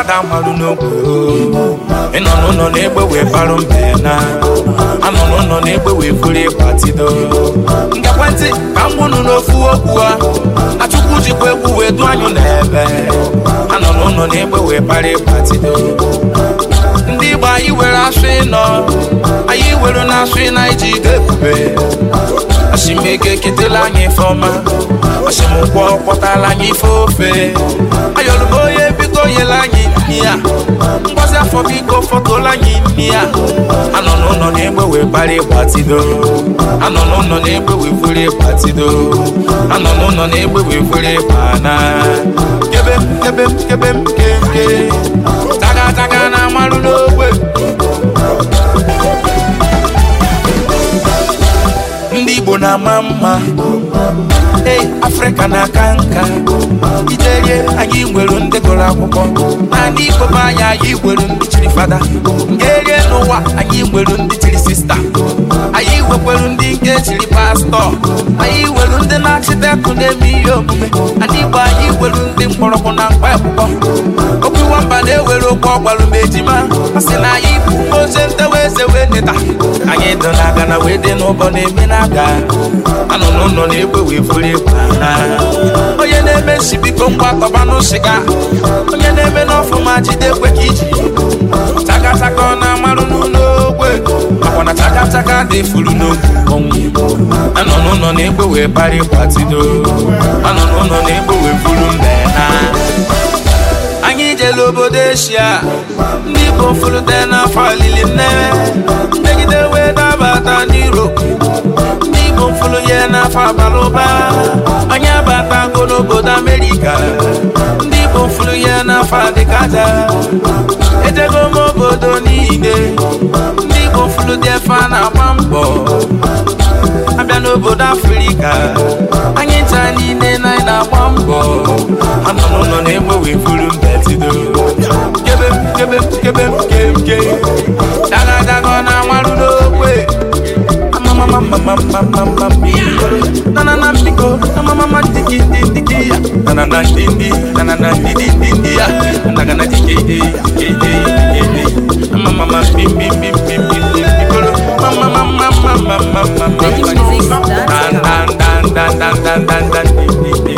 ada malụ n'ogwe ịnọ n'ụlọ na-egbe wee barụ mbe na anọ n'ụlọ na wee buru ịgbatido ngekwentị ka m gbunu n'ofu okwu a achukwu jikwa egwu wee anyụ anọ n'ụlọ na wee ndị igbo anyị were asụ ịnọ anyị were na asụ ịna ketela anyị ifeọma asimụkwọ kpọtala ife ofe ayọrọ akụkọ iko fọtụla anyị anọ n'ụlọ na-egbe wee bara anọ n'ụlọ na-egbe wee fere anọ n'ụlọ na-egbe wee fere ịgbana kebe m kebe m na-ama mma ee afrịka na-aka nka iterie anyị nwere ndị gụrụ akwụkwọ naanị igbo be anyị anyị nwere ndị chiri fada nke erie n'ụwa anyị nwere ndị chiri sista anyị nwekwere ndị nke chiri pastọ anyị nwere ndị na-achịta na-eme ihe omume Anyị igbo anyị nwere ndị mgbọrọgwụ na mkpa akwụkwọ okwu nwamba na-ewere okwu ọgbalụ ma ejima asị na anyị ewe neta anyị dụ n'aka na wee dị n'ụbọ na-eme n'aka anọ n'ụlọ na-egwe wee furu egwu onye na-eme nsi biko ngwa tọba n'ụsịga onye na-eme n'ọfụma jide ekwe ka iji takataka ọ na-amarụ n'ụlọ ogwe makwa na takataka dị furu n'otu ọnwụ anọ n'ụlọ wee bara ịkwatido n'ụlọ na-egwe wee obodo eshia ndị igbo dị n'afọ n'afọ abalị ụba anyị abatago n'obodo Amerịka ndị Igbo furu ya n'afọ adịka aja obodo niile ndị Igbo furu dị efe a na-agba mbọ abịa n'obodo afrika anyị ncha niile na anyị na-agba mbọ anọ n'ụlọ na furu mbetido Mama mama diki diki dia Nana na dindi Nana ya Naga na diki diki diki i Mama mama bim bim Mama mama mama mama mama mama